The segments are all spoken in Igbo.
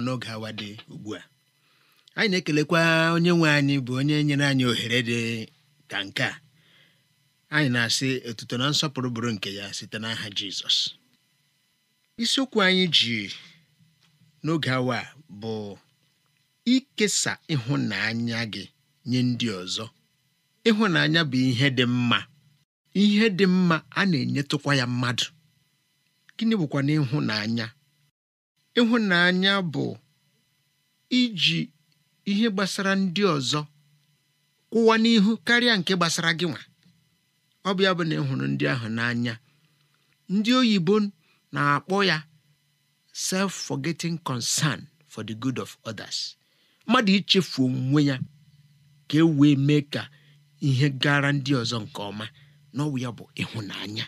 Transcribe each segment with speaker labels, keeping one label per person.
Speaker 1: n'oge awa dị ugbu a anyị na-ekelekwa onye nwe anyị bụ onye nyere anyị ohere dị ka nke a anyị na-asị otuto na nsọpụrụ bụrụ nke ya site n'aha Jizọs isiokwu anyị ji n'oge awa bụ ikesa ịhụnanya gị nye ndị ọzọ ịhụnanya bụ ihe dị mma ihe dị mma a na-enyetụkwa ya mmadụ gịnị bụkwa ịhụnanya? Ịhụnanya bụ iji ihe gbasara ndị ọzọ kwụwa n'ihu karịa nke gbasara gị nwa. Ọ bụ ya bụ na ị ndị ahụ n'anya. Ndị oyibo na-akpọ ya self-forgetting concern for the good of others. Mmadụ ichefu onwe ya ka e wee mee ka ihe gara ndị ọzọ nke ọma na ya bụ ịhụnanya.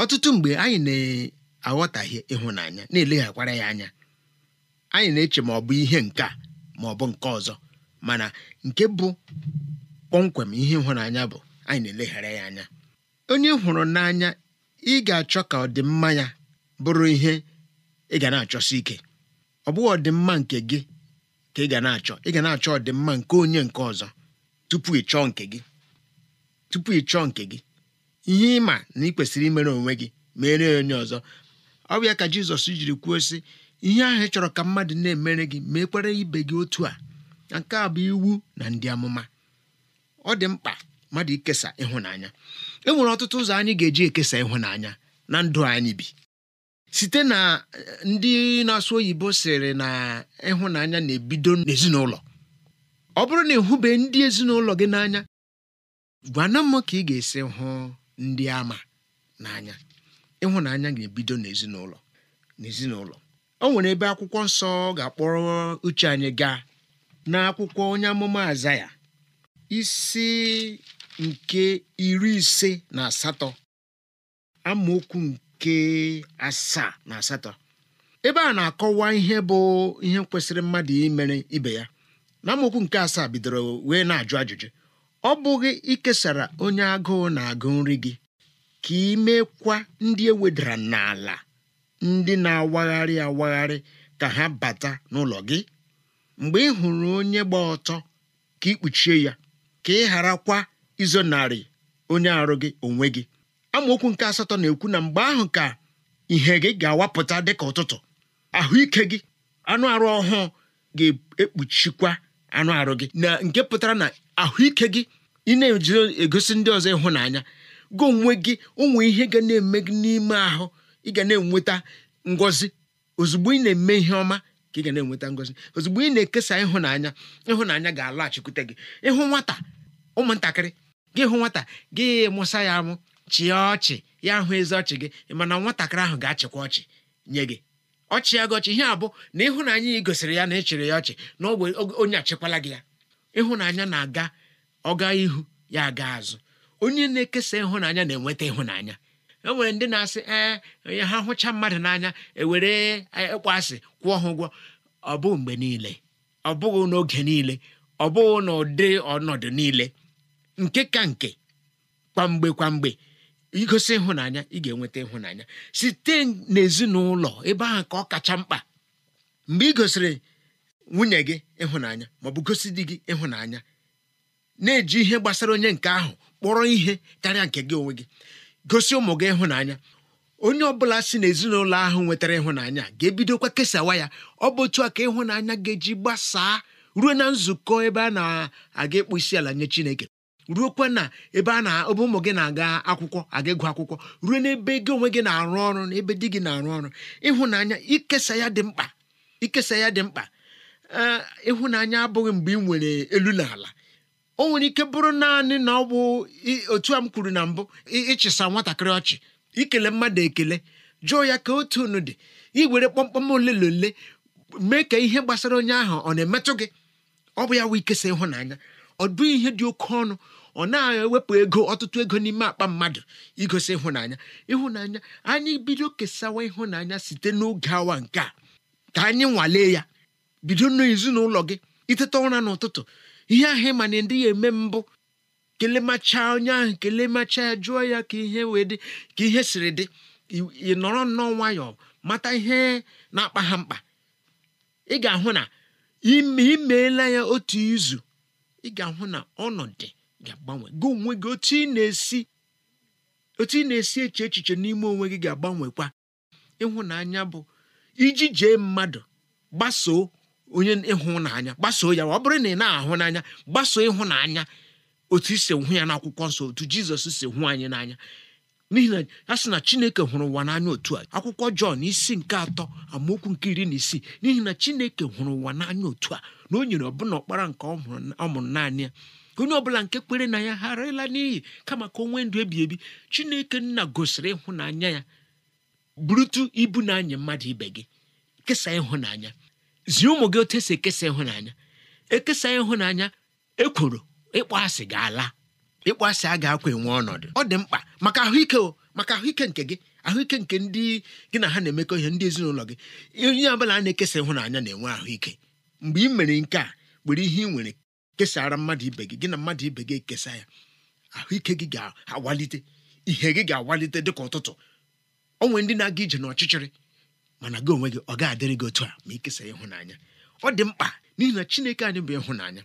Speaker 1: Ọtụtụ mgbe anyị na aghọtahie ịhụnanya na-eleghara ya anya anyị na-eche ma ọ bụ ihe nke a ma ọ bụ nke ọzọ mana nke bụ kpọmkwem ihe ịhụnanya bụ anyị na-eleghara ya anya onye hụrụ n'anya ị ga-achọ ka ọdịmma ya bụrụ ihe ị ga na-achọsi ike ọ bụghị ọdịmma nke gị ka ị ga na-achọ ị ga na-achọ ọdịmma nke onye nke ọzọ tupu ị chọọ nke gị tupu ị chọọ nke gị ihe ịma na ị kwesịrị imere onwe gị mere onye ọzọ ọbịa ya ka jizọs jiri kwuo sị ihe ahụ ị chọrọ ka mmadụ na-emere gị ma ekwere ibe gị otu a nke a bụ iwu na ndị amụma ọ dị mkpa mmadụ ikesa ịhụnanya e nwere ọtụtụ ụzọ anyị ga-eji ekesa ịhụnanya na ndụ anyị bi site na eh, ndị na-asụ oyibo sịrị na ịhụnanya na-ebido n'ezinụlọ ọ bụrụ na ịhụbe ndị ezinụlọ gị n'anya gwana m ka ị ga-esi hụ ndị ama n'anya ịhụnanya ga-ebido n'ezinụlọ n'ezinụlọ o nwere ebe akwụkwọ nsọ ga-akpọrọ uche anyị gaa n'akwụkwọ onye amụma ya isi nke iri ise na asatọ amaokwu nke asaa na asatọ ebe a na-akọwa ihe bụ ihe kwesịrị mmadụ imere ibe ya na amaokwu nke asaa bidoro wee na-ajụ ajụjụ ọ bụghị ikesara onye agụụ na-agụ nri gị ka imekwa ndị e ewedara n'ala ndị na-awagharị awagharị ka ha bata n'ụlọ gị mgbe ị hụrụ onye gba ọtọ ka ikpuchie ya ka ị gharakwa izonarị onye arụ gị onwe gị amaokwu nke asatọ na-ekwu na mgbe ahụ ka ihe gị ga-awapụta dịka ụtụtụ ahụike gị anụ arụ ọhụụ ga-ekpuchikwa anụ arụ gị na nke pụtara na ahụike gị ị na-eji egosi ndị ọzọ ịhụnanya gị onwe gị ụmụ ihe ga na-eme gị n'ime ahụ ị ga na-enweta ngọzi ozugbo ị na-eme ihe ọma ka ị ga na-enweta ngọzi ozugbo ị na-ekesa ịhụnanya ịhụnanya ga-alọghachikwute gị ịhụ nwata ụmụntakịrị gị hụ nwata gị mụsa ya amụ chịa ọchị ya hụ ezi ọchị gị mana nwatakịrị ahụ ga-achịkwa ọchị nye gị ọchị ya gị ọchị ihe abụ na ịhụnanya ị gosiri ya na ị ya ọchị na ọ bụ onye achịkwala gị ya ịhụnanya na-aga ọga ihu ya aga azụ onye na-ekesa ịhụnanya na-enweta ịhụnanya e nwere ndị na-asị ee eh, onye ha hụcha mmadụ n'anya ewere e, ịkpọ asị kwụọ ha ụgwọ ọ bụghị mgbe niile ọ bụghị n'oge niile ọ bụghị n'ụdị ọnọdụ niile nke ka nke kwamgbe kwamgbe igosi ịhụnanya ị ga-enweta ịhụnanya site n'ezinụlọ ebe ahụ ka ọ kacha mkpa mgbe ị gosiri nwunye gị ịhụnanya maọbụ gosi di gị ịhụnanya na-eji ihe gbasara onye nke ahụ kpọrọ ihe karịa nke gị onwe gị gosi ụmụ gị ịhụnanya onye ọbụla si n'ezinụlọ ahụ nwetara ịhụnanya ga-ebidokwa kesawa ya ọ bụ otu a ka ịhụnanya ga-eji gbasaa ruo na nzukọ ebe a na-aga ịkpụ isi ala nye Chineke ruokwa na ebe a na ebe ụmụ gị na-aga akwụkwọ aga ịgụ akwụkwọ ruo n'ebe gị onwe gị na-arụ ọrụ na ebe di gị na-arụ ọrụ ịhụnanya ikesa ya dị mkpa ikesa ya dị mkpa ịhụnanya abụghị mgbe ị nwere elu na ala o nwere ike bụrụ naanị na ọ bụ otu a m kwuru na mbụ ịchịsa nwatakịrị ọchị ikele mmadụ ekele jụọ ya ka otu unu dị iwere kpọmkpọm ole na ole mee ka ihe gbasara onye ahụ ọ na-emetụ gị ọ bụ ya wee ikesa ịhụnanya ọ bụ ihe dị oke ọnụ ọ na-ewepụ ego ọtụtụ ego n'ime akpa mmadụ igosi ịhụnanya ịhụnanya anyị bido kesawa ịhụnanya site n'oge awa nke a ka anyị nwalee ya bido n'ezinụlọ gị iteta ụra n'ụtụtụ ihe ahụ ma na ndị ya eme mbụ kelemacha onye ahụ kelemacha jụọ ya ka ihe wee dị ka ihe siri dị ị nọrọ nnọọ nwayọọ mata ihe na-akpa ha mkpa ị ga-ahụ na imeela ya otu izu ị ga-ahụ na ọnọdụ ga-agbanwe gị onwe gị otu ị na-esi otu ị na-esi eche echiche n'ime onwe gị ga-agbanwekwa ịhụnanya bụ iji jee mmadụ gbasoo onye ịhụnanya gbasoo ya ọ bụrụ na ị na-ahụ n'anya gbasoo ịhụnanya otu isi hụ ya n'akwụkwọ nsọ otu jizọs si hụ anyị n'anya n'ihi na ya sị na chineke hụrụ ụwa n'anya otu a akwụkwọ jọn isi nke atọ amaokwu nke iri na isii n'ihi na chineke hụrụ ụwa n'anya otu a na o nyere ọbụna ọkpara nke ọ mụrụ naanị ya onye ọbụla nke kwere na ya gharịla n'iyi kama ka o nwee ndụ ebi ebi chineke nna gosiri ịhụnanya ya burutu ibu na anya mmadụ ibe gị kesa ịhụnanya zie ụmụ gị otu esi ekesa ịhụnanya ekesa ịhụnanya ekworo ịkpọ asị ga-ala ịkpọ asị a ga-akwa enwe ọnọdụ ọ dị mkpa maka ahụike o maka ahụike nke gị ahụike nke ndị gị na ha na-emekọ ihe ndị ezinụlọ gị onye ọbụla a na-ekesa ịhụnanya na-enwe ahụike mgbe ị mere nke a were ihe ị nwere kesara mmadụ ibe gị gị na mmadụ ibe gị ekesa ya ahụike gị ga-awalite ihe gị ga-awalite dịka ụtụtụ onwe ndị na-aga ije n'ọchịchịrị mana gị onwe gị ọ ga-adịrị gị otu a ma ikesa ịhụnanya ọ dị mkpa n'ihi na chineke anyị bụ ịhụnanya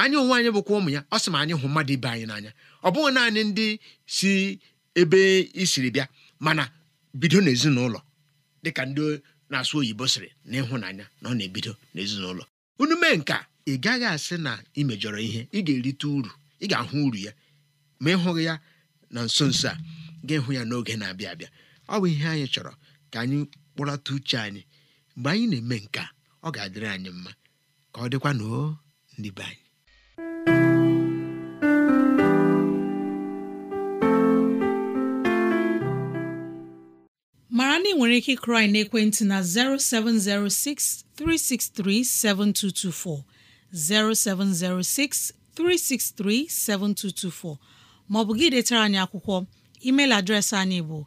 Speaker 1: anyị onwe anyị bụkwa ụmụ ya ọ sị ma anyị hụ mmadụ ibe anyị n'anya ọ bụghị naanị ndị si ebe isiri bịa mana bido n'ezinụlọ dịka ndị na-asụ oyibo sịrị na ịhụnanya na ọ na-ebido n'ezinụlọ unu mee nke ị gaghị asị na ị mejọrọ ihe ị ga-erite uru ị ga-ahụ uru ya ma ịhụghị ya na nso nso a ga ịhụ ya n'oge na-abịa abịa ọ bụ ihe anyị chọrọ ka anyị kpọlata uche anyị mgbe anyị na-eme nke a ọ ga-adịrị anyị mma ka ọ dịkwa na ndị be anyị
Speaker 2: mara na nwere ike ịkụrụ anyị na 0706 363 7224 0706 363 7224 maọbụ gị detara anyị akwụkwọ emeil adreesị anyị bụ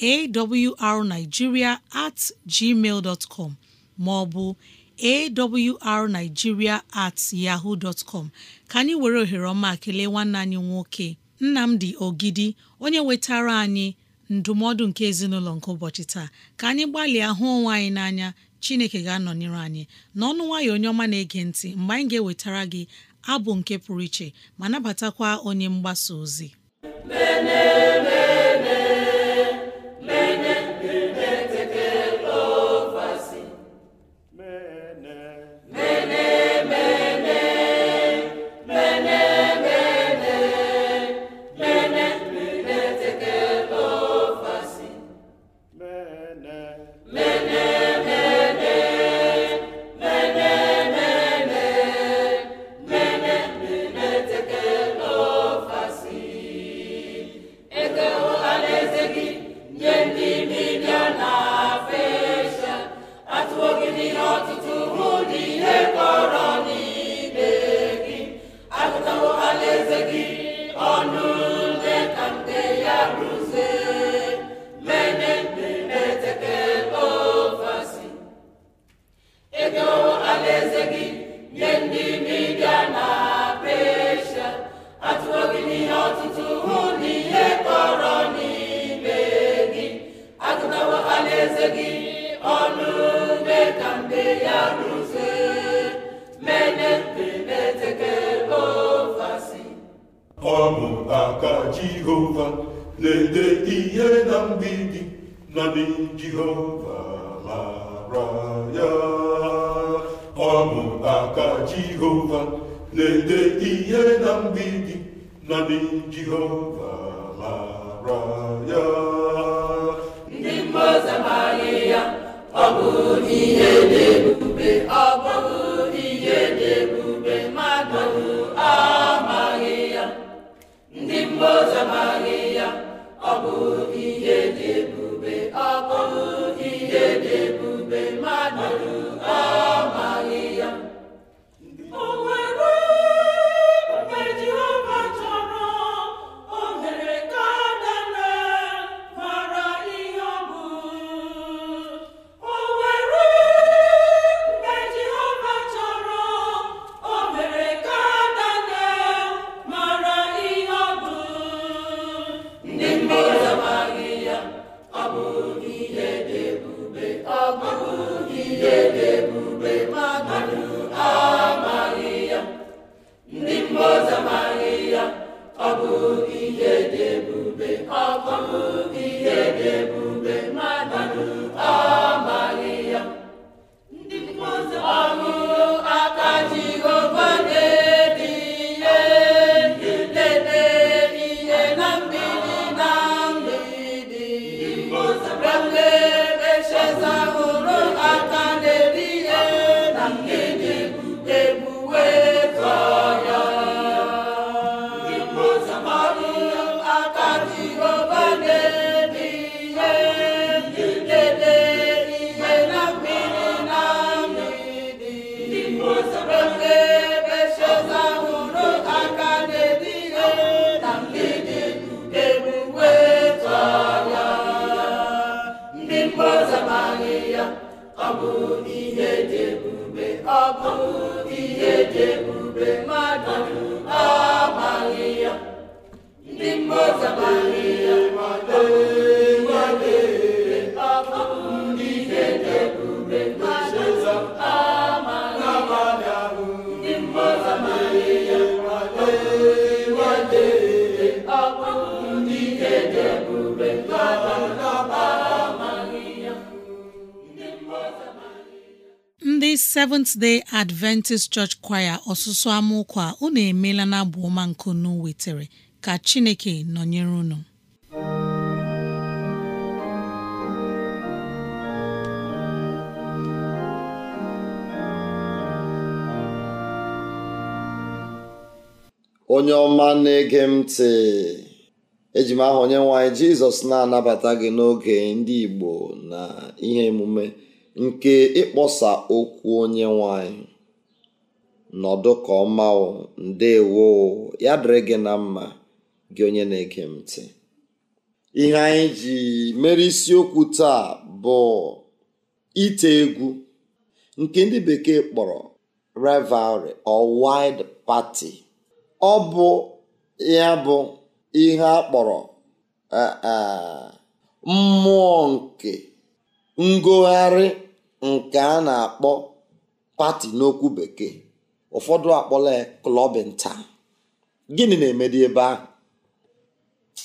Speaker 2: awrnigeria at gmail dot com maọbụ awrnigeria at yahoo dot com ka anyị were ohere ọma kelee nwanne anyị nwoke Nnamdi Ogidi onye wetara anyị ndụmọdụ nke ezinụlọ nke ụbọchị taa ka anyị gbalịa hụ onwe anyị n'anya Chineke ga-anọnyere anyị n'ọnụ nwayọọ onye ọma na-ege ntị mgbe anyị ga-ewetara gị abụ nke pụrụ iche ma nabatakwa onye mgbasa ozi
Speaker 1: mgbidi naanị Jehova
Speaker 3: mara ya aka Jehova na-ede ihe na mgbidi naanị Jehova mara
Speaker 2: ndị Seventh Day Adventist Church Choir ọsụsụ amụkwa unu emeela na abụ ọma nke unu wetere ka Chineke nọnyere unu
Speaker 3: onye ọma na-ege m ntị eji m aha onye nwanyị Jizọs na-anabata gị n'oge ndị Igbo na ihe emume nke ịkpọsa okwu onye nwanyị nọdụ ka ọma ndewo ya dịrị gị na mma gị onye na-ege m ihe anyị ji mere isiokwu taa bụ ite egwu nke ndị bekee kpọrọ revelry or wide party ọ bụ ya bụ ihe a kpọrọ eh, eh, mmụọ nke ngogharị nke a na-akpọ pati n'okwu bekee ụfọdụ akpọla ya klọbin taa gịnị na-emedi ebe ahụ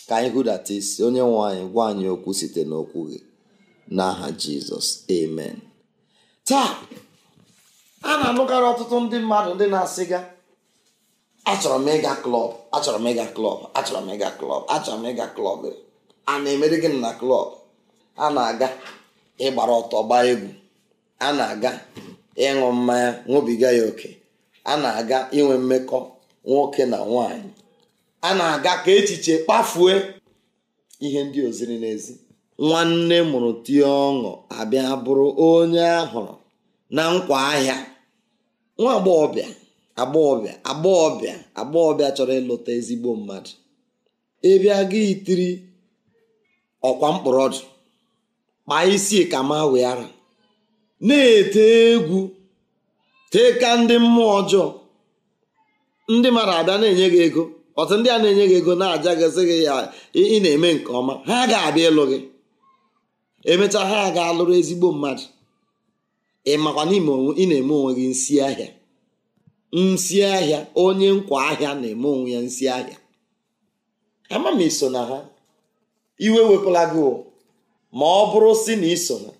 Speaker 3: ka anyị hụdata isi onye nwe anyị gwa anyị okwu site n'okwu gị n'aha jizọs amen taa a na-anụkarị ọtụtụ ndị mmadụ ndị na-asịga achọrọ m ịga klọb achọrọ m ịga klọb achọrọ m ịga klọb achọrọ m ịga klọb a na-emeri gịnị na klọb a na-aga ịgbara ọtọ gbaa egwu a na-aga ịṅụ mmanya ṅụbiga ya oke a na-aga inwe mmekọ nwoke na nwanyị a na-aga ka echiche kpafue ihe ndị oziri n'ezi nwanne mụrụ tie ọṅụ abịa bụrụ onye ahụrụ na nkwa ahịa nwa agbọghọbịa agbọghọbịa agbọghọbịa agbọghọbịa chọrọ ịlụta ezigbo mmadụ ịbịa gị itiri ọkwa mkpọrọdụ kpaa isi ka ma wee na-ete egwu tee ka ndị mmụọ ọjọọ ndị mmadụ abịa na-enye gị ego ọtụ ndị a na-enye gị ego na-aja gịsị gị ya ị na-eme nke ọma ha ga-abịa ịlụ gị emechaa ha ga-alụrụ ezigbo mmadụ ị makwa n'ime ị na-eme onwe gị nsi ahịa nsi ahịa onye nkwa ahịa na-eme onwe ya nsi ahịa ama m iso na ha iwe wepụla gị ma ọ bụrụ si na iso ha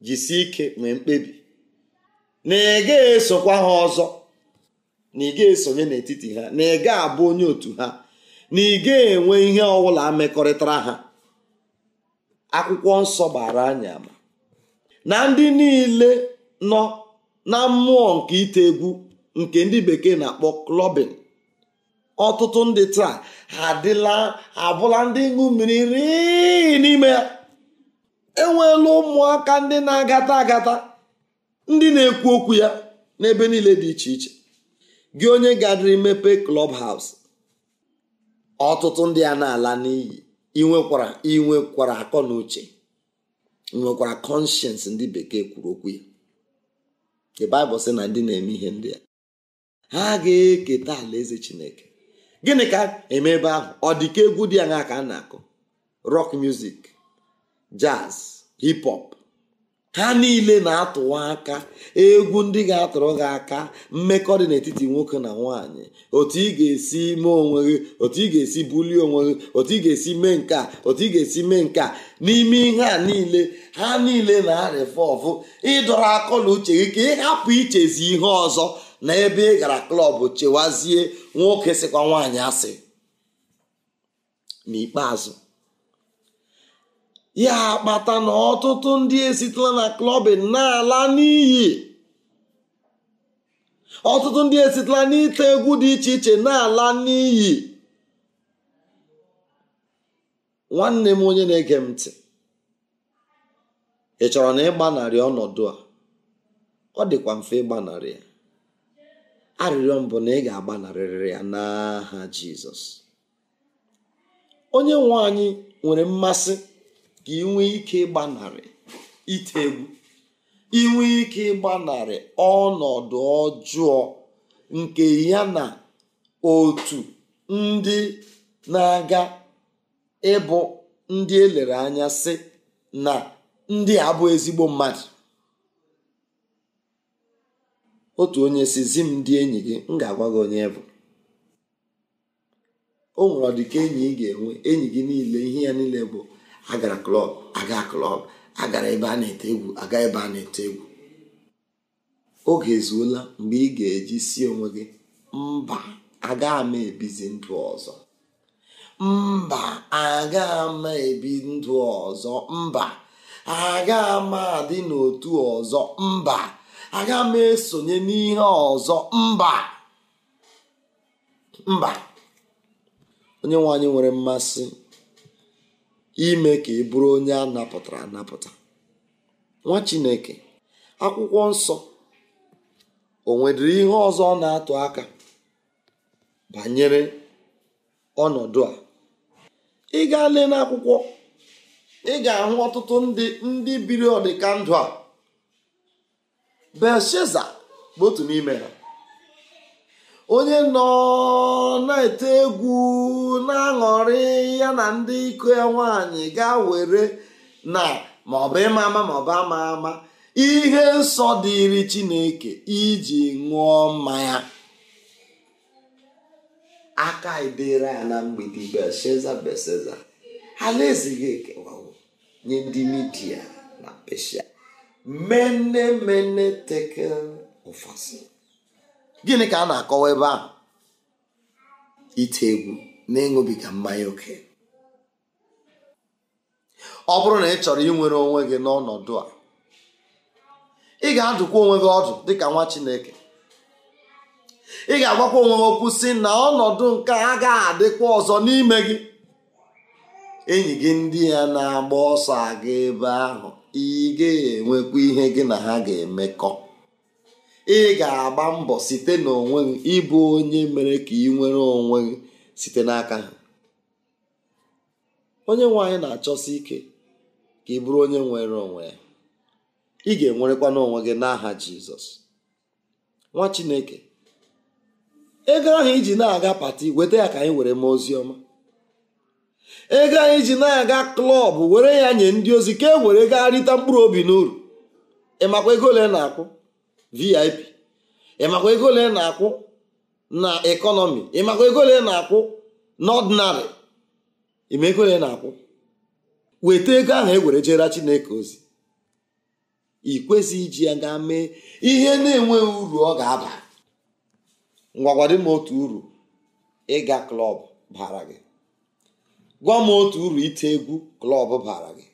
Speaker 3: jisie ike nwee mkpebi na ị ga-esokwa ha ọzọ na ị ga-esonye n'etiti ha na ị ga-abụ onye otu ha na ị ga-enwe ihe ọbụla mekọrịtara ha akwụkwọ nsọ gbara anya na ndị niile nọ na mmụọ nke ite egwu nke ndị bekee na-akpọ klọbin ọtụtụ ndị taa adịla abụla ndị ṅụ mmiri rii n'ime ya enweela ụmụaka ndị na-agata agata ndị na-ekwu okwu ya n'ebe niile dị iche iche gị onye gadịrị klọb haus ọtụtụ ndị a na-ala n'iyi inwekwara inwekwara akọ na uche nwekwara kọnshens ndị bekee kwuru okwu ya the Bible sị na ndị na-eme ihe ndị a ha ga-eketa alaeze Chineke gịnị ka emeebe ahụ ọ dị egwu dị aṅa ka a na-akụ rock music jazz hip hop ha niile na-atụwa aka egwu ndị ga-atụrụ gị aka mmekọ dị n'etiti nwoke na nwaanyị otu ị ga-esi mee onwe gị otu ị ga-esi bulie onwe gị otu ị ga-esi mee nke a otu ị ga-esi mee nke n'ime ihe a niile ha niile na ọfụ ịdọrọ akọ na uche gị ka ịhapụ ichezi ihe ọzọ na ebe ị gara klọb chewazie nwoke sịkwa nwaanyị asị n'ikpeazụ ya akpata na ọtụtụ ndị esitela na klọbin na-ala n'iyi ọtụtụ ndị esitela n'ite egwu dị iche iche na-ala n'iyi nwanne m onye na-ege m ntị ị chọrọ na ịgbanarị ọnọdụ a ọ dịkwa mfe ịgbanarị ya arịrịọ mbụ na ị ga-agbanarịrị ya n'aha Jizọs onye nwe anyị nwere mmasị ka inwe ike ịgbanarị ite egwu inwe ike ịgbanarị ọnọdụ ọjọọ nke ya na otu ndị na-aga ịbụ ndị elere anya sị na ndị abụọ ezigbo mmadụ otu onye si zi m ndị enyi gị m ga-agwa gị onye bụ o nwere ọdịka enyi ị ga-enwe enyi gị niile ihe ya niile bụ agara klọb aga klọb agara ebe a na-ete egwu aga ebe a na-ete egwu oge ezuola mgbe ị ga-eji si onwe gị mba aga m ebizi ndụ ọzọ mba aga m ebi ndụ ọzọ mba aga m adị n'otu ọzọ mba aga m esonye n'ihe ọzọ mba mba onye nwe nwere mmasị ime ka ị bụrụ onye a napụtara anapụta nwa chineke akwụkwọ nsọ o nwedịrị ihe ọzọ ọ na-atụ aka banyere ọnọdụ a ị gaa lee n'akwụkwọ ị ga-ahụ ọtụtụ ndị ndị biri ọdịka ndụ a Belshaza bụ otu n'ime ha onye nọ na-ete egwu na-aṅụrị ya na ndị iko ya nwaanyị gaa were na maọbụ ịma ama maọbụ ama ama ihe nsọ dịrị chineke iji ṅụọ mmanya aka edere ya na mgbidi belshaza belshaza alaeze gị ekewawo nye ndị midia na peshia mene mene tekel gịnị ka a na-akọwa ebe ahụ ite egwu na-ịṅụbiga mmanya oke ọ bụrụ na ị chọrọ inwere onwe gị n'ọnọdụ a ị ga-adụkwa onwe gị ọdụ dịka nwa Chineke ị ga-agwakwa onwe gị okwu si na ọnọdụ nke a ga adịkwa ọzọ n'ime gị enyi gị ndị ya na-agba ọsọ aga ebe ahụ ị ga-enwekwa ihe gị na ha ga-emekọ ị ga-agba mbọ site n'onwe gị ịbụ onye mere ka ị nwere onwe gị site n'aka ha onye nwe anyị na-achọsi ike ka ị bụrụ onye nwere onwe ya ị ga-enwerekwa n'onwe gị n'aha jizọs nwa chineke ego ahụ iji na-aga pati weta ya ka anyị were mee ozi ọma ego anyị ji na-aga klọb were ya nye ndị ozi ka e were gaa rịta mkpụrụ obi n'uru ị makwa ego ole na-akwụ vip ịmakwa ego ole na-akwụ na ekọnọmi ịmakwa ego ole na-akwụ n'ọdịnarị ịma ego ole na-akwụ weta ego ahụ e were jere chineke ozi ị kwesịghị iji ya ga mee ihe na-enweghị uru ọ ga-aba ngwagwadị m otu uru ịga klọb bara gị gwa m otu uru ite egwu klọb bara gị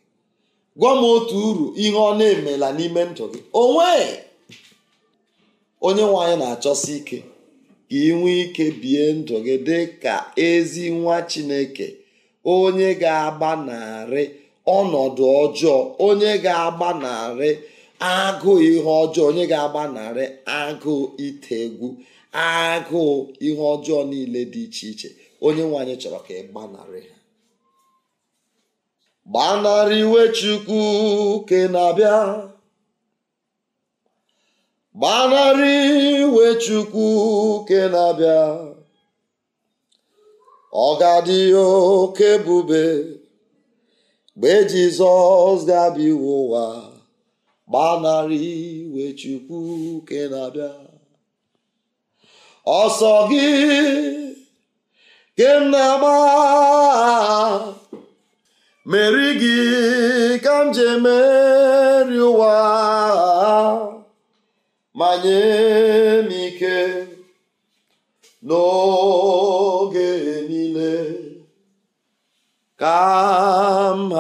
Speaker 3: gwa m otu uru ihe ọ na-emela n'ime ndụ gị onwe onye nwe na-achọsi ike ka ị nwee ike bie ndụ gị dị ka ezi nwa chineke onye ga-agbanarị ọnọdụ ọjọọ onye ga-agbanarị agụụ ihe ọjọọ onye ga-agbanarị agụụ ite egwu agụụ ihe ọjọọ niile dị iche iche onye nwe chọrọ ka ị gbanarị ha gbanarị iwe chukwu ke na-abịa gbanarị iwe chukwu ke na-abịa ọ oke ebube mgbe jizọs ga-abịa iwe ụwa gbanarị iwe chukwu ke na-abịa ọsọ gị ke m na-agba meri gị ka m ji emeri ụwa ma nye m ike n'oge niile ka m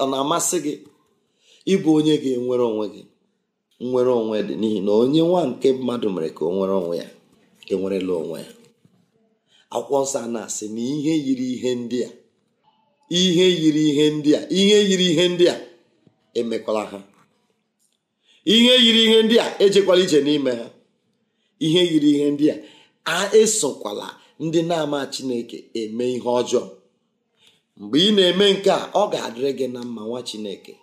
Speaker 3: ọ na-amasị gị ịbụ onye ga-enwere onwe gị nwere onwe dị n'ihi na onye nwa nke mmadụ mere ka o nwere onwe ya enwerela onwe ya akwụkwọ nsọ a na-asị na ihe yiri ihe ndị a ihe yiri ihe ndị a ihe yiri ihe ndị a emekwala ha ihe yiri ihe ndị a ejekwala ije n'ime ha ihe yiri ihe ndị a a esokwala ndị na-ama chineke eme ihe ọjọọ mgbe ị na-eme nke a ọ ga-adịrị gị na mma nwa chineke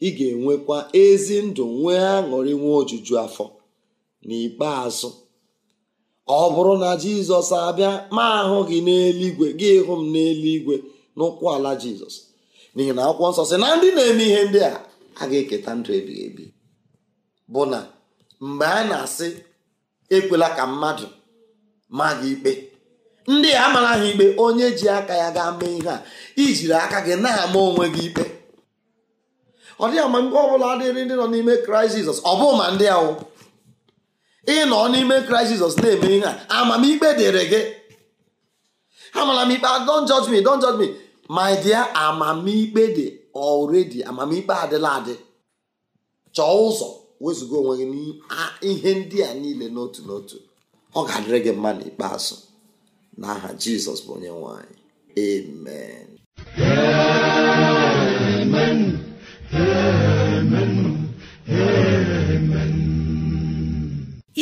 Speaker 3: ị ga-enwekwa ezi ndụ nwee aṅụrị nwee ojuju afọ n'ikpeazụ ọ bụrụ na jizọs abịa ma ahụ gị n'eluigwe gị hụ m n'eluigwe n'ụkwụ ala jizọs n'ihi na akwụkwọ nsọ sị na ndị na-eme ihe ndị a a ga-eketa ndụ ebighị ebi bụ na mgbe a na-asị ekwela ka mmadụ maa gị ikpe ndị a ha ikpe onye ji aka ya gaa mee ihe a ijiri aka gị na-ama onwe gị ikpe ọ dịghị ama mgbe ọbụla adịghị ndị nọ n'ime kraịst jizọs ọ bụghị ma ndị ahụ ịnọ n'ime kraịst jizọs na-eme ihe a amamikpe dịrị gị amara m ikpe ah, don't judge me don't judge me my dear amamikpe dị already amamikpe adịla adị chọọ ụzọ wezụga onwe gị ihe ndị a niile n'otu n'otu ọ ga-adịrị gị mma n'ikpeazụ n'aha jizọs bụ onye nwanyị. anyị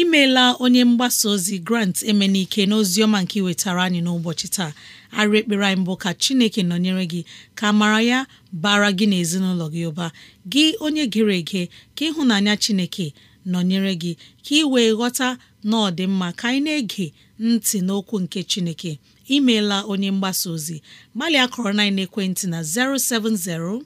Speaker 2: imeela onye mgbasa ozi grant emenike ọma nke iwetara anyị n'ụbọchị taa arị ekpere anyị mbụ ka chineke nọnyere gị ka mara ya bara gị na ezinụlọ gị ụba gị onye gere ege ka ịhụnanya chineke nọnyere gị ka ị wee ghọta na ka anyị na-ege ntị n'okwu nke chineke imeela onye mgbasa ozi gbalịa kọrọ na ekwentị na 070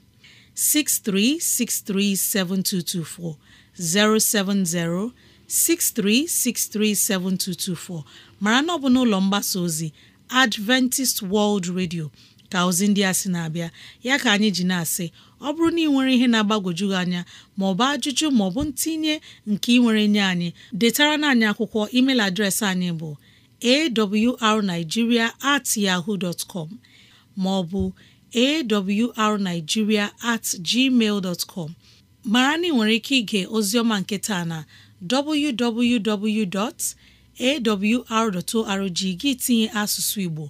Speaker 2: 63637224 070 63637224 mara na ọ bụ n'ụlọ mgbasa ozi adventist world radio ka ozi ndị a sị na-abịa ya ka anyị ji na-asị ọ bụrụ na ị nwere ihe na-agbagwoju gị anya maọbụ ajụjụ maọbụ ntinye nke ị nwere nye anyị detara na anyị akwụkwọ email adreesị anyị bụ awrnigeria at yahoo dot com maọbụ awrnigeria at gmail dot mara na ị nwere ike ige oziọma nke na www. awr.org gị tinye asụsụ Igbo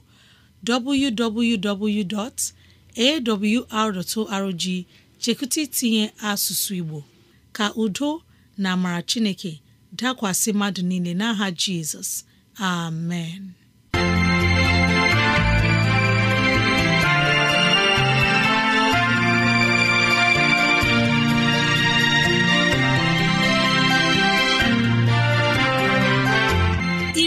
Speaker 2: www.awr.org chekụta itinye asụsụ Igbo ka udo na amara Chineke dakwasị mmadụ niile n'aha Jizọs amen